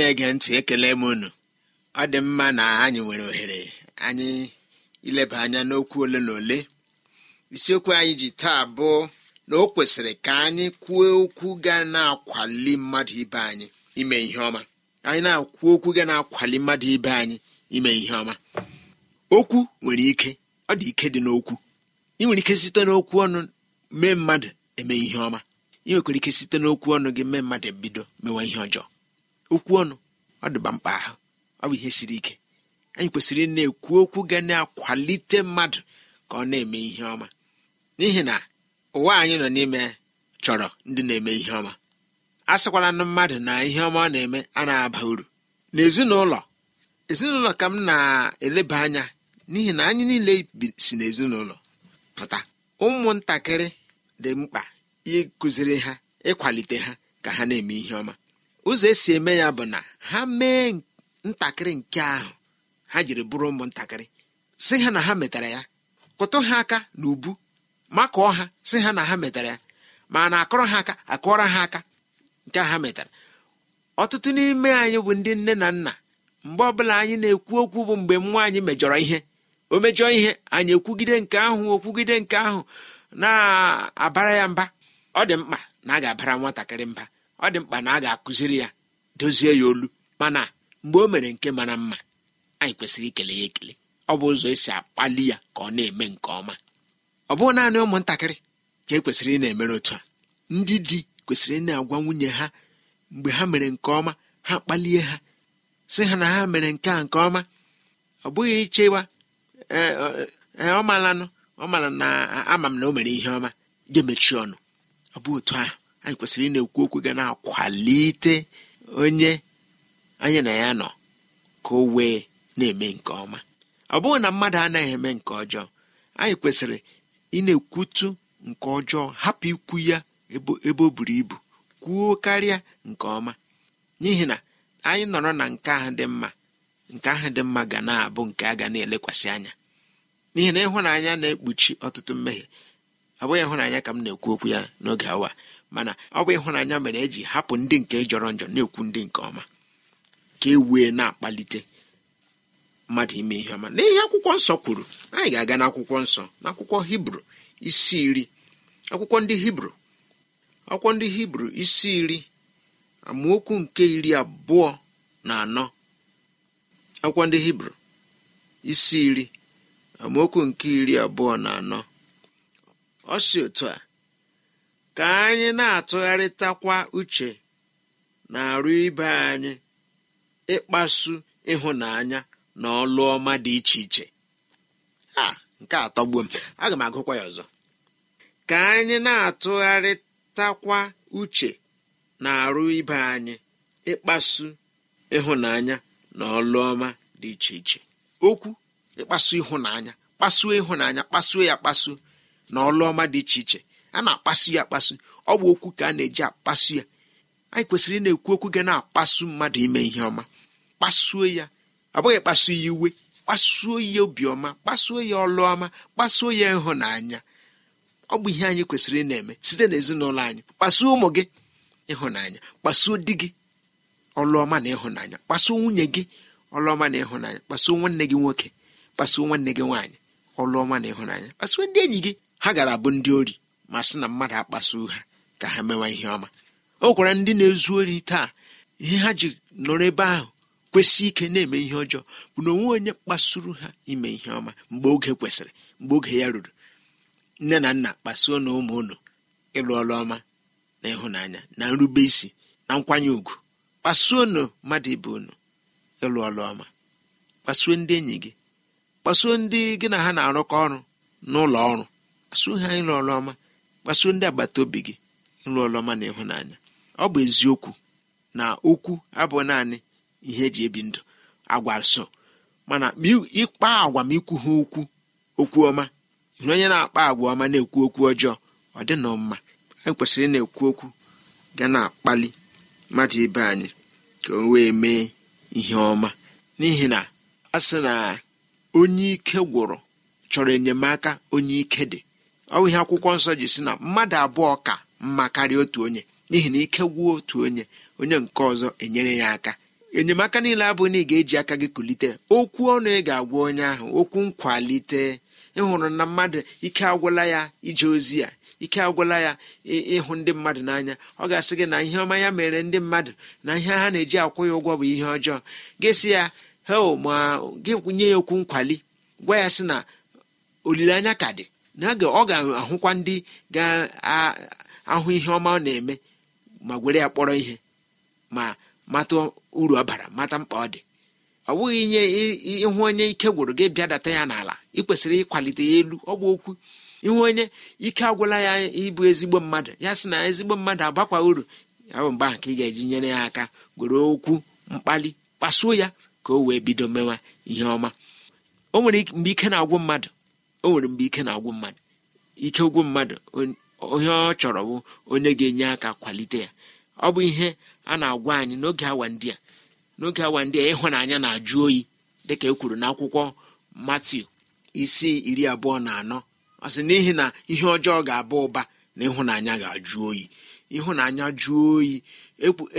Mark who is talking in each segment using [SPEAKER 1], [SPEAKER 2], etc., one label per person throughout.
[SPEAKER 1] na-ege ntị ekele m unu ọ dị mma na anyị nwere ohere anyị ileba anya n'okwu ole na ole isiokwu anyị ji taa bụ na o kwesịrị ka anyị kwuo okwu ga na-akwali mmadụ ibe anyị ime ihe ọma anyị na-akwu okwu ga na-akwali mmadụ ibe anyị ime ihe ọma okwu nwere ike ọ dị ike dị n'okwu ị nwere ike site n'okwu ọnụ mee mmadụ eme ihe ọma ị nwekwara ike site n'okwu ọnụ gị mee mmadụ bido mewa ihe ọjọọ okwu ọnụ ọ dịba mkpa ahụ ọ bụ ihe siri ike anyị kwesịrị na-ekwu okwu ga na-akwalite mmadụ ka ọ na-eme ihe ọma n'ihi na ụwa anyị nọ n'ime chọrọ ndị na-eme ihe ọma a sịkwala na mmadụ na ihe ọma ọ na-eme a na-aba uru na ezinụlọ ezinụlọ ka m na-eleba anya n'ihi na anyị niile si n'ezinụlọ pụta ụmụntakịrị dị mkpa ịkụziri ha ịkwalite ha ka ha na-eme ihe ọma ụzọ esi eme ya bụ na ha mee ntakịrị nke ahụ ha jiri bụrụ ụmụntakịrị si ha na ha metara ya kụtụ ha aka na ubu makụọ ha si ha na ha metara ya ma na akọrọ ha aka akụọra ha aka nke ha metara ọtụtụ n'ime anyị bụ ndị nne na nna mgbe ọbụla anyị na-ekwu okwu bụ mgbe nwa anyị mejọrọ ihe o mejọ ihe anyị ekwugide nke ahụ okwugide nke ahụ na-abara ya mba ọ dị mkpa na a ga-abara nwatakịrị mba ọ dị mkpa na a ga-akụziri ya dozie ya olu mana mgbe o mere nke mara mma anyị kwesịrị ikele ya ekele ọ bụ ụzọ esi akpali ya ka ọ na-eme nke ọma ọ bụghị naanị ụmụntakịrị ka e kwesịrị ị na-emere otu a ndị di kwesịrị ị na-agwa nwunye ha mgbe ha mere nke ọma ha kpalie ha sị ha na ha mere nke a nke ọma ọ bụghị ichewa e, e, e, ọ malanụ ọ mara na ama m na o mere ihe ọma ga-emechi ọnụ ọ bụ otu ahụ anyị kwesịrị ị na-ekwu okwu ga na-akwalite onye anyị na ya nọ ka o wee na-eme nke ọma ọ bụghị na mmadụ anaghị eme nke ọjọọ anyị kwesịrị ị na-ekwutu nke ọjọọ hapụ ikwu ya ebe o buru ibu kwuo karịa nke ọma n'ihi na anyị nọrọ na nke ahụ dị mma nke ahụ dị mma ga na-abụ nke a ga na-elekwasị anya n'ihi na ịhụnanya na-ekpuchi ọtụtụ mmehie ọ bụghị ịhụnanya ka m na-ekwu okwu ya n'oge awa mana ọ bụ ịhụnanya mere eji hapụ ndị nke jọrọ njọ na-ekwu ndị nke ọma ka e wee na-akpalite mmadụ ime ihe ọma n'ihe akwụkwọ nsọ kwuru anyị ga-aga n'akwụkwọ nsọ n'akwụkwọ hibru isi iri akwụkwọ ndị hibru akwụkwọ ndị hibru isi iri amaokwu nke iri abụọ na anọ akwụkwọ ndị hibru isi iri amaokwu nke iri abụọ na anọ ọ si otu a ka anyị na-atụgharịtakwa uche na-arụ ibe anyị ịkpasu ịhụnanya na ọlụ ọma dị iche iche a nke atọgbuo m aga m agụkwa ya ọzọ ka anyị na-atụgharịtakwa uche na-arụ ibe anyị ịkpasu ịhụnanya na ọlụ ọma dị iche iche okwu ịkpasu ịhụnanya kpasuo ịhụnanya kpasuo ya kpasuo na ọlụ ọma dị iche iche a na-akpasu ya akpasu ọ bụ okwu ka a na-eji akpasu ya anyị kwesịrị ị na-ekwu okwu ga na-akpasu mmadụ ime ihe ọma kpasuo ya ọ bụghị kpasuo ya iwe kpasuo ya obiọma kpasuo ya ọlụọma kpasuo ya ịhụnanya ọ bụ ihe anyị kwesịrị ịna eme site n'ezinụlọ anyị kpasuo ụmụ gị ịhụnanya kpasuo di gị ọlụọma na ịhụnanya kpasuo nwunye gị ọlụọma na ịhụnanya kpasuo nwanne gị nwoke kpasuo nwanne gị nwaanyị ọlụọma na ịhụnanya kpasuo ndị enyi gị ha gara bụ ndị ori ma sị na mmadụ akpasuo ha ka ha mewa ihe ọma o gwara ndị na-ezu ori taa ihe ha ji nọrọ ebe ahụ kwesị ike na-eme ihe ọjọọ bụ na onwe onye kpasuru ha ime ihe ọma mgbe oge kwesịrị mgbe oge ya ruru nne na nna kpasuo na ụmụ unu ịlụ ọrụ ọma na ịhụnanya na nrube isi na nkwanye ùgwù kpasuo nu mmadụ ibe unu ịlụ ọrụ ọma kpasuo ndị enyi gị kpasuo ndị gị na ha na-arụkọ ọrụ n'ụlọ ọrụ kpasuo ha ịlụ ọma kpasuo ndị agbata obi gị nrụ ọrụ na ịhụnanya ọ bụ eziokwu na okwu abụ naanị ihe eji ebi ndụ agwa so mana ịkpa agwa ma ikwu ha okwu okwu ọma na onye na-akpa agwa ọma na-ekwu okwu ọjọọ ọ dị nọ mma anyị kwesịrị na-ekwu okwu ga na-akpali mmadụ ibe anyị ka o wee mee ihe ọma n'ihi na a sị na onye ike gwụrụ chọrọ enyemaka onye ike dị ọ ihe akwụkwọ nsọ ji si na mmadụ abụọ ka mma karịa otu onye n'ihi na ike gwuo otu onye onye nke ọzọ enyere ya aka enyemaka niile abụghị na ị ga-eji aka gị kulite okwu ọnụ ị ga-agwa onye ahụ okwu nkwalite ịhụrụ na mmadụ ike agwụla ya ije ozi ya ike agwụla ya ịhụ ndị mmadụ n'anya ọ ga-asị gị na ihe ọma ya mere ndị mmadụ na ihe ha na-eji akwụ ya ụgwọ bụ ihe ọjọọ gịsị ya hel ma gị nye ya okwu nkwali gwa ya sị na olileanya ka dị na ọ ga-ahụkwa ndị ga-ahụ ihe ọma ọ na-eme ma were ya kpọrọ ihe ma mata uru ọ bara mata mkpa ọ dị ọ bụghị inye ịhụ onye ike gwụrụ gị bịadata ya n'ala ị kwesịrị ịkwalite ya elu ọ bụ okwu ịhụ onye ike agwụla ya ịbụ ezigbo mmadụ ya sị na ezigbo mmadụ agbakwa uru ya bụ mgbe ka ị ga-eji nyere ya aka gwere okwu mkpali kpasuo ya ka o wee bido mewa ihe ọma o nwere mgbe ike na-agwụ mmadụ o nwere mgbe ike na-agwụ mmadụ ike ụgwụ mmadụ onye ọ chọrọ bụ onye ga-enye aka kwalite ya ọ bụ ihe a na-agwa anyị n'oge awa ndị a n'oge awa ndị a ịhụnanya na-ajụ oyi dịka e kwuru n'akwụkwọ Matiu isi iri abụọ na anọ ọ sị n'ihi na ihe ọjọọ ga-aba ụba na ịhụnanya ga-ajụ oyi ịhụnanya jụọ oyi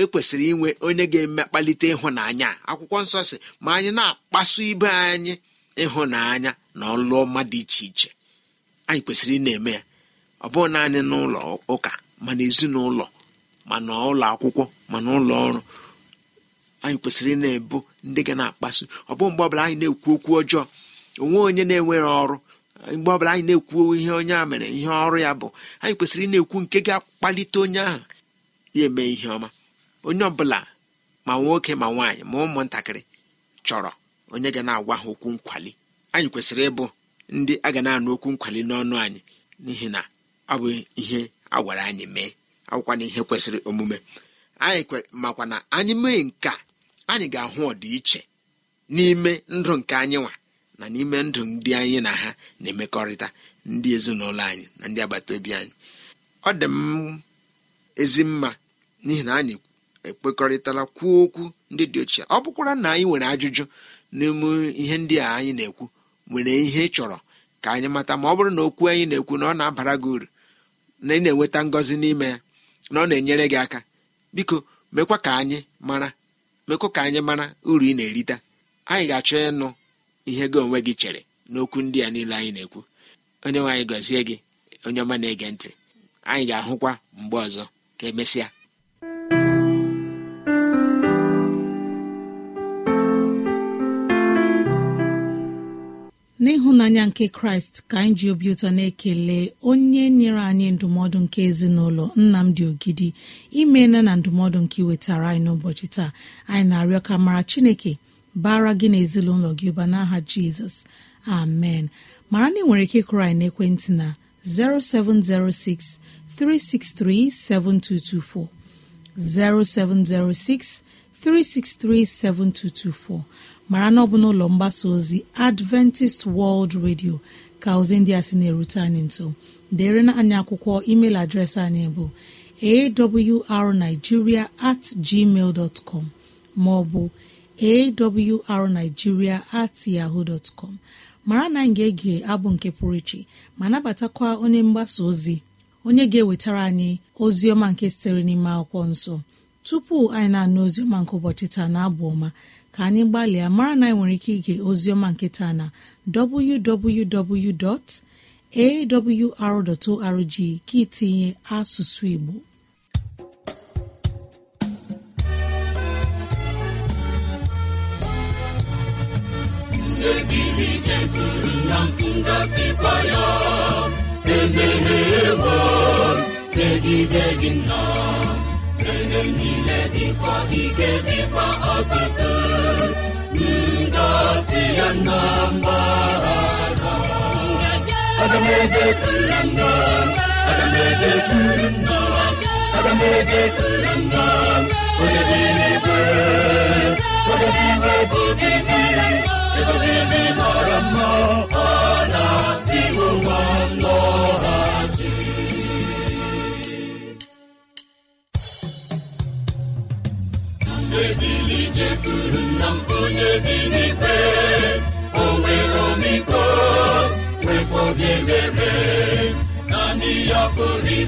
[SPEAKER 1] ekwesịrị e inwe onye ga-eme kpalite ịhụnanya akwụkwọ nsọ si ma anyị na-akpasu ibe anyị ịhụnanya na ọlụ ọma dị iche iche anyị kwesịrị ị na-eme ya ọ bụghị naanị n'ụlọ ụka mana ezinụlọ ma n'ụlọ akwụkwọ ma n'ụlọ ọrụ anyị kwesịrị na-ebu ndị ga na-akpasu ọ bụghị mgbe ọbụla anyị na-ekwu okwu ọjọọ onwe onye na-enweghị ọrụ mgbe ọbụla anyị na-ekwu ihe onye a mere ihe ọrụ ya bụ anyị kwesịrị ị na-ekwu nke ga-akpalite onye ahụ ya eme ihe ọma onye ọbụla ma nwoke ma nwaanyị ma ụmụntakịrị chọrọ onye ga na-agwa ha okwu nkwali anyị kwesịrị ịbụ ndị a ga na-anụ okwu nkwali n'ọnụ anyị n'ihi na ọ bụ ihe a gwara anyị mee akwụkwa na ihe kwesịrị omume anyị makwa na anyị mee nka anyị ga-ahụ ọdịiche n'ime ndụ nke anyị nwa na n'ime ndụ ndị anyị na ha na-emekọrịta ndị ezinụlọ anyị na ndị agbata obi anyị ọ dị m ezi mma n'ihi na anyị ekpekọrịtala kwuo okwu ndị dị ochie ọ bụkwara na anyị nwere ajụjụ n'ime ihe ndị a anyị na-ekwu nwere ihe chọrọ ka anyị mata ma ọ bụrụ na okwu anyị na-ekwu na ọ na-abara gị uru na ị na-enweta ngọzi n'ime ya na ọ na-enyere gị aka biko mekwa ka anyị mara mekwa ka anyị mara uru ị na-erita anyị ga-achọ ịnụ ihe gị onwe gị chere n'okwu ndị a niile anyị na-ekwu onye nwe gọzie gị onye ọma na-ege ntị anyị ga-ahụkwa mgbe ọzọ ka emesịa
[SPEAKER 2] n'ịhụnanya nke kraịst ka anyị ji obi ụtọ na-ekele onye nyere anyị ndụmọdụ nke ezinụlọ nnamdị ogidi imeela na ndụmọdụ nke iwetara anyị n'ụbọchị taa anyị na-arịọ ka mara chineke bara gị na ezinụlọ gị ụba n'aha jizọs amen mara na ị nwere ike ịkụrụ anyị n'ekwentị na 0706 363 7224 0706 363 7224 mara na ọ bụ n'ụlọ mgbasa ozi adventist world radio ka ozi ndị a sị na-erute anyị nso dere na anyị akwụkwọ email adreesị anyị bụ awrnigeria at gmail dot com maọbụ awrnigeria at yahoo dot mara na anyị ga-ege abụ nke pụrụ iche ma nabatakwa onye mgbasa ozi onye ga-ewetara anyị ozi ọma nke sitere n'ime akwụkwọ nsọ tupu anyị na-anụ oziọma nke ụbọchị taa na abụ ọma ka anyị gbalịa mara na anyị nwere ike ige oziọma nke taa na www.awr.org ka itinye asụsụ Igbo
[SPEAKER 3] ekele niile dịkwa ike dịkwa ọtụtụ ngọzi ya na mbara aga m eje kuru nna aga m eje nna aga m nna dị n'igwe mma ọ na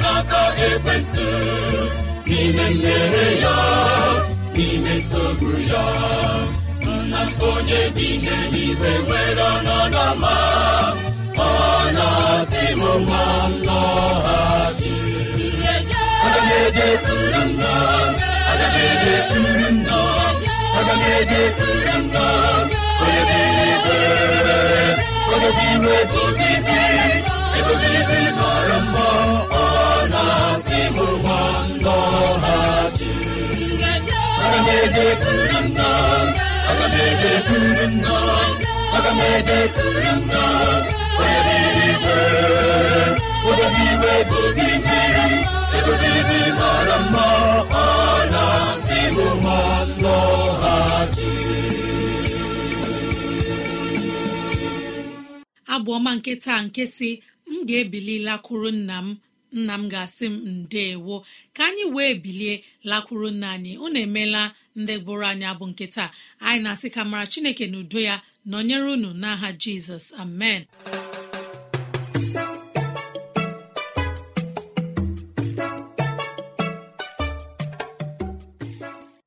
[SPEAKER 3] n'aka ekwensụ n'ime mmehie ya n'ime nsogbu ya nna onye bi n'eluigwe nwere ọnọdụ ọma ọ na-asị m ma m lọghachi onye onye obibi ebe obibi mma ịmụgba m eje nna eje nna m
[SPEAKER 2] nke taa nke si m ga-ebilila kụrụ nna m nna m ga-asị m ndeewo ka anyị wee bilie lakwuru nna anyị unu emeela ndị gbụrụ anyị abụ nke taa anyị na-asị ka mara chineke na udo ya nọnyere unu n'aha jizọs amen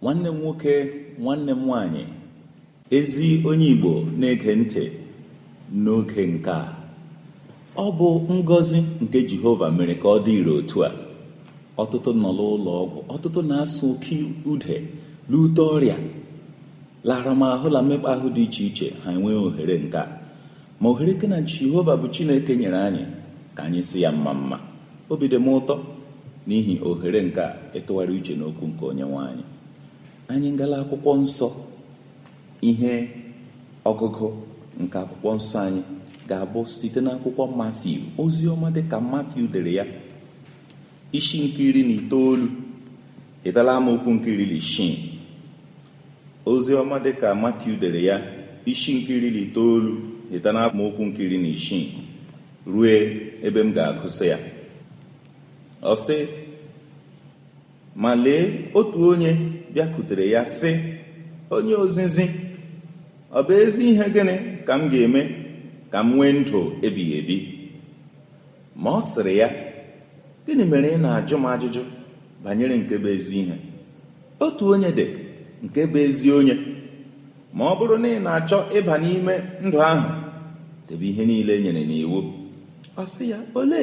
[SPEAKER 4] nwanne m nwoke nwanne m nwanyị ezi onye igbo na-ege ntị n'oge nke a ọ bụ ngọzi nke jehova mere ka ọ dị ire otu a ọtụtụ nọ n'ụlọ ọgwụ ọtụtụ na-asụ oke ude lute ọrịa laramahụ la mmekpa ahụ dị iche iche ha enweghị ohere nke a ma ohere ke na jehova bụ chineke nyere anyị ka anyị si ya mma mma obi dị m ụtọ n'ihi ohere nke a ịtụgharị e uche n'okwu nke onye anyị anyị ngala akwụkwọ nsọ ihe ọgụgụ nke akwụkwọ nsọ anyị ga-abụ site n'akwụkwọ Matiu ozi ọma dịka Matiu dere ya isi nke iri na itoolu ịtala amaokwu nke iri na ozi ọma dịka Matiu dere ya isi nke iri na itoolu ịtala amaokwu nke iri na isii ruo ebe m ga-agụsị ya ọ sị ma lee otu onye bịakutere ya sị onye ozizi ọ bụ ezi ihe gịnị ka m ga-eme ka m nwee ndụ ebighị ebi ma ọ sịrị ya gịnị mere ị na-ajụ m ajụjụ banyere nke bụ ezi ihe otu onye dị nke bụ ezi onye ma ọ bụrụ na ị na-achọ ịba n'ime ndụ ahụ debe ihe niile nyere nyere n'iwu ọ sị ya ole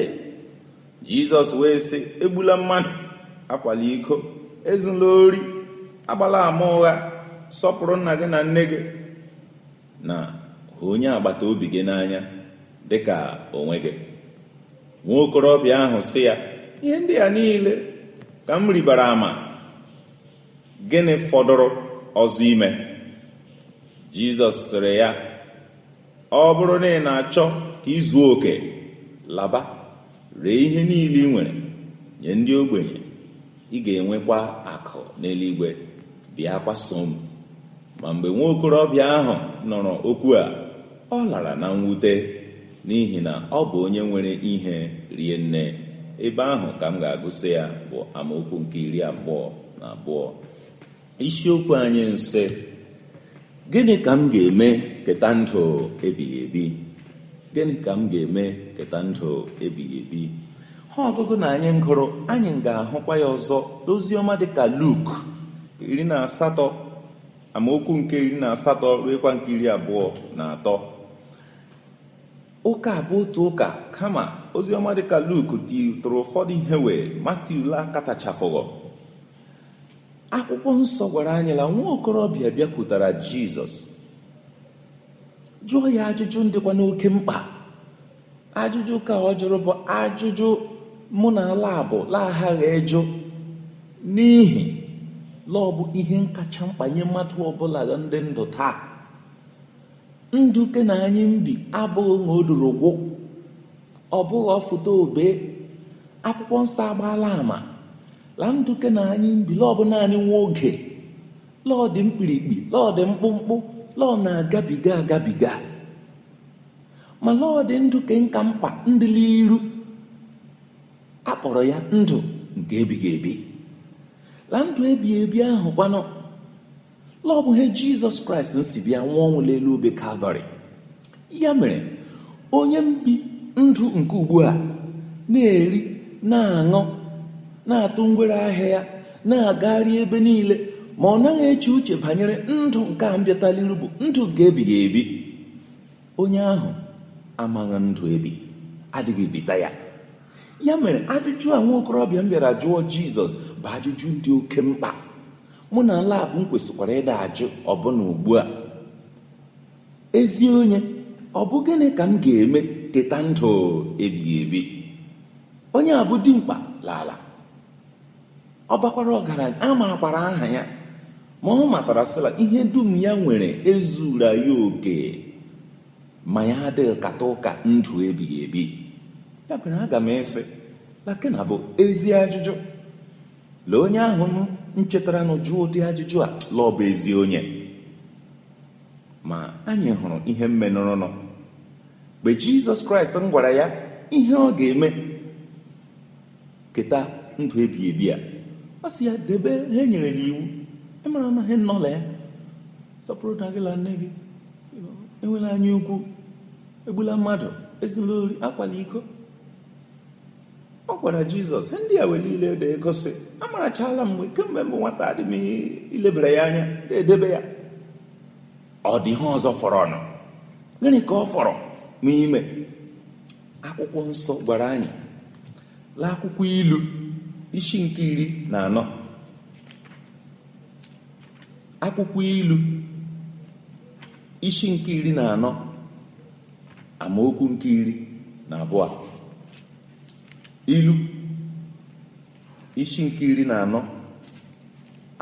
[SPEAKER 4] jizọs wee sị egbula mmadụ akwala iko ezula ori agbala ama ụgha sọpụrụ nna gị na nne gị na onye agbata obi gị n'anya ka onwe gị nwa okorobịa ahụ sị ya ihe ndị a niile ka m ribara ama gịnị fọdụrụ ọzọ ime jizọs sịrị ya ọ bụrụ na ị na-achọ ka ịzụ oke laba ree ihe niile ị nwere nye ndị ogbenye ị ga-enwekwa akụ n'eluigwe bịa kwaso m ma mgbe nwa okorobịa ahụ nọrọ okwu a ọ lara na mwute n'ihi na ọ bụ onye nwere ihe rie nne ebe ahụ ka m ga-agụsị ya bụ amaokwu nke iri abụọ na abụọ isiokwu anyị nsị, gịnị ka m ga-eme keta ndụ ebighị ebi gịnị ka m ga-eme keta ndụ ebighị ebi ha ọgụgụ na anyị ngụrụ anyị ga-ahụkwa ya ọzọ n'oziọma dịka luk iri na asatọ amaokwu nke iri na asatọ ruekwa nke iri abụọ na atọ ụka bụ otu ụka kama oziọma dịka luku tụrụ ụfọdụ ihe wee ule laa katachafụghọ akwụkwọ nsọ gwara anyị na nwa okorobịa bịakwutara jizọs jụọ ya ajụjụ ndịkwa n'oke mkpa ajụjụ ka ọ jụrụ bụ ajụjụ mụ na ala bụ laa ịjụ n'ihi lọọ bụ ihe kacha mkpa nye mmadụ ọbụla ndị ndụ taa nduke na anyị mbi abụghị na ọ bụghị ọfụta obe akwụkwọ nsọ agbaala ama la nduke na anyị mbi lọọ naanị nwa oge lọọ dị mkpirikpi lọọ dị mkpụmkpụ lọọ na-agabiga agabiga ma lọọ dị nduke nka mkpa ndịla iru akpọrọ ya ndụ nke ebighị ebi la ndụ ebighị ebi ahụ kwanụ lọọ bụ ihe jizọs kraịst si bịa nwa ọnwụ n'elu obe kalvarị ya mere onye mbi ndụ nke ugbu a na-eri na-aṅụ na-atụ ngwere ahịa ya na-agagharị ebe niile ma ọ naghị eche uche banyere ndụ nke a mbịataliru bụ ndụ nke ebighị ebi onye ahụ amaghị ndụ ebi adịghị ebita ya ya mere ajụjụ a nwa okorobịa m bịara jụọ jizọs bụ ajụjụ dị oke mkpa mụ na labụ m kwesịkwara ịda ajụ ọbụna ugbu a ezi onye ọ bụ gịnị ka m ga-eme keta ndụ ebighị ebi onye a bụ dimkpa lala ọ bakwara ọgaranya a makwara aha ya ma ọ matara sịla ihe dum ya nwere ezura ya oke ma ya adịghị kata ụka ndụ ebighị ebi ya aga m ịsị lakena bụ ezi ajụjụ lee onye ahụ nchetaranụ jụọ ụdị ajụjụ a bụ ezi onye ma anyị hụrụ ihe mmenụrụnụ mgbe jizọs kraịst m gwara ya ihe ọ ga-eme keta ndụ ebi ebi a ọ sị ya debe ha e nyere n'iwu ịmara na ha nọla ya sọpụrụ na gị nne gị enwela anya ukwu egbula mmadụ ezinụlọ ori akwala iko ọ gwara jizọs ndị a wee niile da-egosi amarachala mgbe kemgbe mbụ nwata adị m ihe ilebara ya anya na-edebe ya ọ dị ihe ọzọ fọrọnụ gịnị ka ọ fọrọ n'ime akwụkwọ nsọ gwara anyị lee akwụkwọ ilu isi nke iri na anọ akwụkwọ ilu isi nke iri na anọ amaokwu nke iri na abụọ ilu isi nke iri na anọ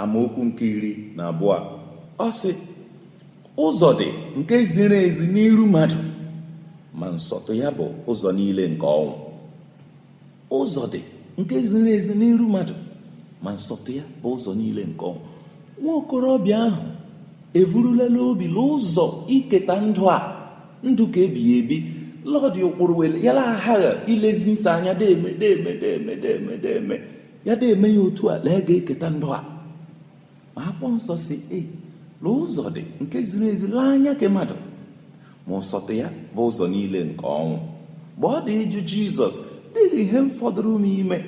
[SPEAKER 4] amaokwu nke iri na abụọ ọ sị ụzọ dị nke ziri ezi n'iru mmadụ ma nsọtụ ya bụ ụzọ niile nke ọnwụ ụzọ dị nke ziri ezi n'iru mmadụ ma nsọtụ ya bụ ụzọ niile nke ọnwụ nwa okorobịa ahụ evurulela obi n'ụzọ iketa ndụ a ndụ ka ebighị ebi lọdị ụkpụrụ ya aghaghị ilezi nsọ anya deme deme deme deme ya deeme ya otu a lee eh, ga-eketa ndụ a ma akpọ nsọ si e na ụzọ dị nke ziri ezi laa anya ka mmadụ ma ụsọtụ ya bụ ụzọ niile nke ọnwụ mgbe ọ dị ịjụ jizọs dịghị ihe m fọdụrụ m ime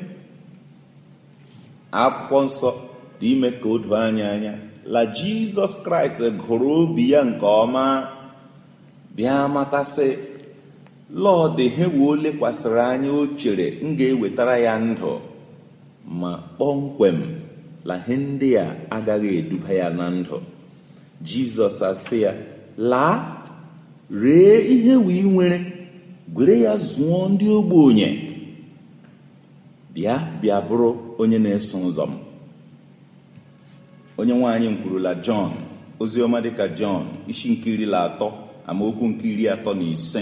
[SPEAKER 4] akwụkwọ nsọ dị ime ka o doo anya anya la jizọs kraịst gụrụ obi ya nke ọma bịa matasị he wuo lekwasịrị anya o chere m ga-ewetara ya ndụ ma kpọmkwem na ihe ndị a agaghị eduba ya na ndụ jizọs asị ya laa ree ihe wee nwere gwere ya zụọ ndị ogbenye bịa bịa bụrụ onye na-eso ụzọ onye nwaanyị m kwurula jọn oziọma dịka jọn isi nke iri atọ amaokwu nke iri atọ na ise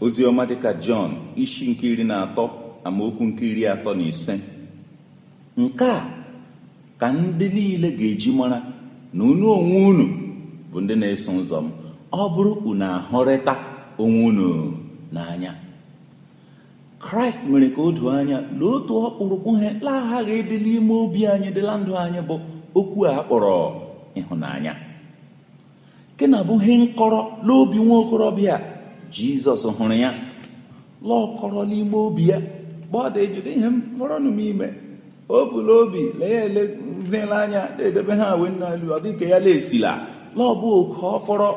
[SPEAKER 4] oziọma dịka jọn isi nke iri na atọ amaokwu nke iri atọ na ise nke a ka ndị niile ga-eji mara na unu onwe unu bụ ndị na-eso ụzọ m ọ bụrụ unu ahụrịta onwe unu n'anya kraịst mere ka o doo anya na otu ọkpụrụkpụ ihe laghaghị ịdị n'ime obi anyị dịla ndụ anyị bụ okwu a kpọrọ ịhụnanya nke na bụ ihe nkọrọ n'obi nwa okorobịa jizọs hụrụ ya lọkọrọ n'ime obi ya dị ejide ihe m fọrọnụ m ime o buru obi lee ya eleziela anya na-edebe ha wee n'elu ọ dịka ya laesila laọbụ oke fọrọ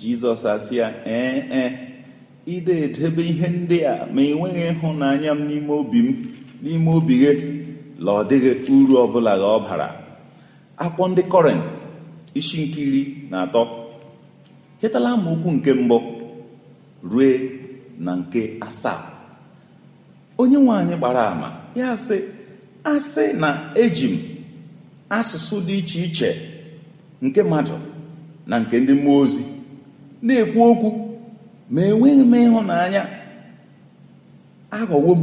[SPEAKER 4] jizọs asị ya ee ee ide edebe ihe ndị a ma enweghị ịhụnanya m n'ime obi m n'ime obi gị la ọ dịghị uru ọbụla gị ọ bara akpọ ndị kọrent isi nke iri na atọ hetala amaokwu nke mbụ rue na nke asaa onye nwe anyị gbara ama ya sị asị na eji m asụsụ dị iche iche nke mmadụ na nke ndị mmụọ ozi na-ekwu okwu ma enweghị m ịhụnanya aghọwo m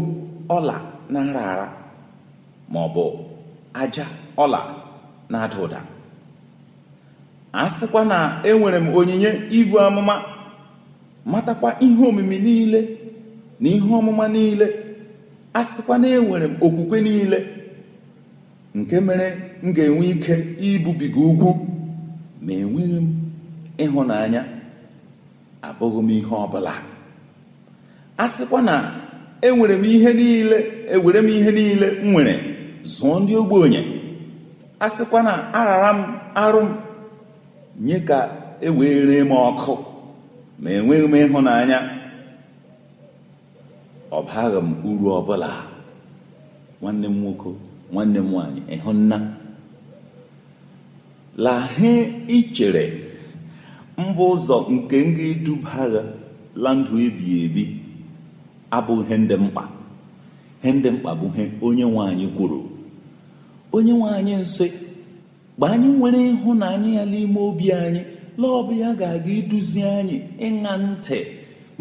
[SPEAKER 4] ọla na nra ara ma ọ bụ aja ọla na-ada ụda a sịkwa na enwere m onyinye ivu amụma matakwa ihe omimi niile na ihe ọmụma niile a sịkwa na enwere m okwukwe niile nke mere m ga-enwe ike ibubiga ugwu ma enweghị m ịhụnanya abụghị m ihe ọbụla a sịkwa na enwere m ihe niile ewere m ihe niile m nwere zụọ ndị ogbenye a sịkwa na arara m arụ m nye ka e wee m ọkụ ma enweghị m ịhụnanya ọ baghị m uru ọbụla nwanne m nwoke nwanne m nwanyị ịhụnna lahe ichere mba ụzọ nke nga iduba agha la ndụ ebighị ebi abụghị ihe ndị mkpa ihe ndị mkpa bụ ihe onye nwanyị kwuru onye nwanyị nsị mgbe anyị nwere ịhụnanya ya n'ime obi anyị lọbụ ya ga-aga iduzi anyị ịṅa ntị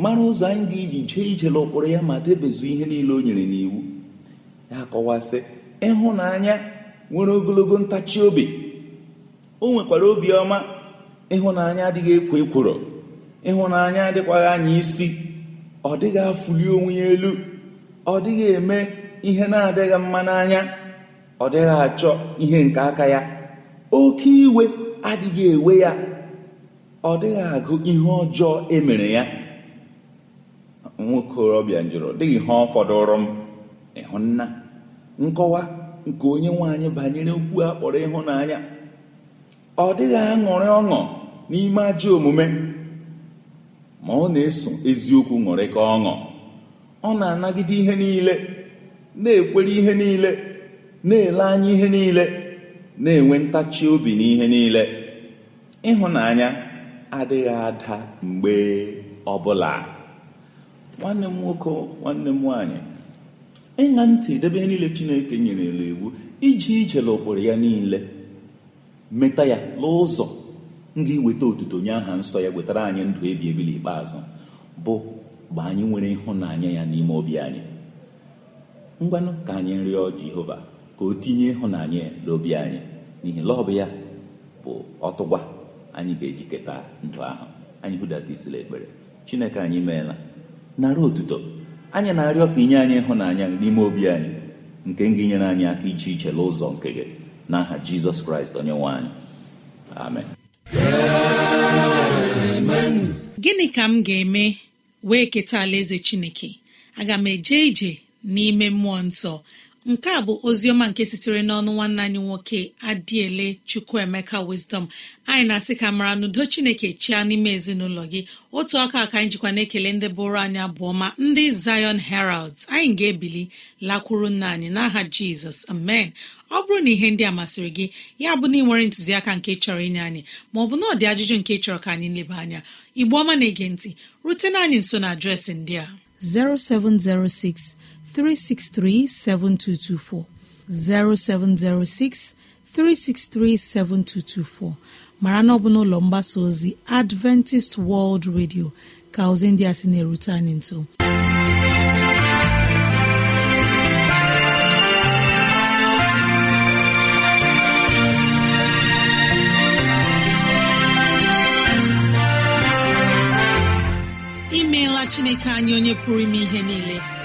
[SPEAKER 4] mara ụzọ anyị ga-eji jee ije n'ụkpụrụ ya ma debezu ihe niile o nyere n'iwu ya kọwasị ịhụnanya nwere ogologo ntachi obi o nwekwara obiọma ịhụnanya adịghị ekwo ekworo ịhụnanya adịkwaghị anya isi ọ dịghị afụli onwe ya elu ọ dịghị eme ihe na-adịghị mma n'anya ọ dịghị achọ ihe nke aka ya oke iwe adịghị ewe ya ọ dịghị agụ ihe ọjọọ emere ya nwokorobịa njụrụ dịghị ihe ọ fọdụrụ m ịhụnna nkọwa nke onye nwaanyị banyere okwu a kpọrọ ịhụnanya ọ dịghị aṅụrị ọṅụ n'ime ajọ omume ma ọ na-eso eziokwu ṅụrị ka ọṅụ ọ na-anagide ihe niile na-ekwere ihe niile na-ele anya ihe niile na-enwe ntachi obi n'ihe niile ịhụnanya adịghị ada mgbe ọbụla nwanne m nwoke nwanne m nwaanyị ịṅa ntị debe niile chineke nyerela iwu iji ije n'ụkpụrụ ya niile meta ya n'ụzọ nga iweta otuto onye aha nsọ ya wetara anyị ndụ ebi ebi n'ikpeazụ bụ mgbe anyị nwere ịhụnanya ya n'ime obi anyị ngwanụ ka anyị rịọ jehova ka o tinye ịhụnanya ya n'obi anyị n'ihi lọbụ ya bụ ọtụgwa anyị ga ejiketa ndụ ahụ anyị budata isila ekpere chineke anyị meela narị otuto anyị na-arịọ ka inye anyị ịhụnanya n'ime obi anyị nke gị nyere anyị aka iche iche n'ụzọ nke gị na n'aha jizọs kraịst onye nwe anyị amen
[SPEAKER 2] gịnị ka m ga-eme wee keta alaeze chineke aga m eje ije n'ime mmụọ nsọ nke a bụ oziọma nke sitere n'ọnụ nwanne anyị nwoke adiele chukwuemeka wisdom anyị na-asị ka mara n'udo chineke chia n'ime ezinụlọ gị otu aka aka anyị jikwa na-ekele ndị bụrụ anyị bụ ọma ndị Zion Heralds anyị ga-ebili lakwuru nna anyị n'aha jizọs amen ọ bụrụ na ihe ndị a masịrị gị ya bụ na ị nwere ntụziaka nke chọrọ inye anyị bụ na ọdị ajụjụ nke chọrọ ka anyị leba anya igbo ọma na-ege ntị rutena anyị nso na adreesị ndị a 0706 363 7224 0706 363 7224 mara na ọ bụ n'ụlọ mgbasa ozi Adventist World Radio ka ozi ndị a sị na-erute anyị nso imeela Chineke anya onye pụrụ ime ihe niile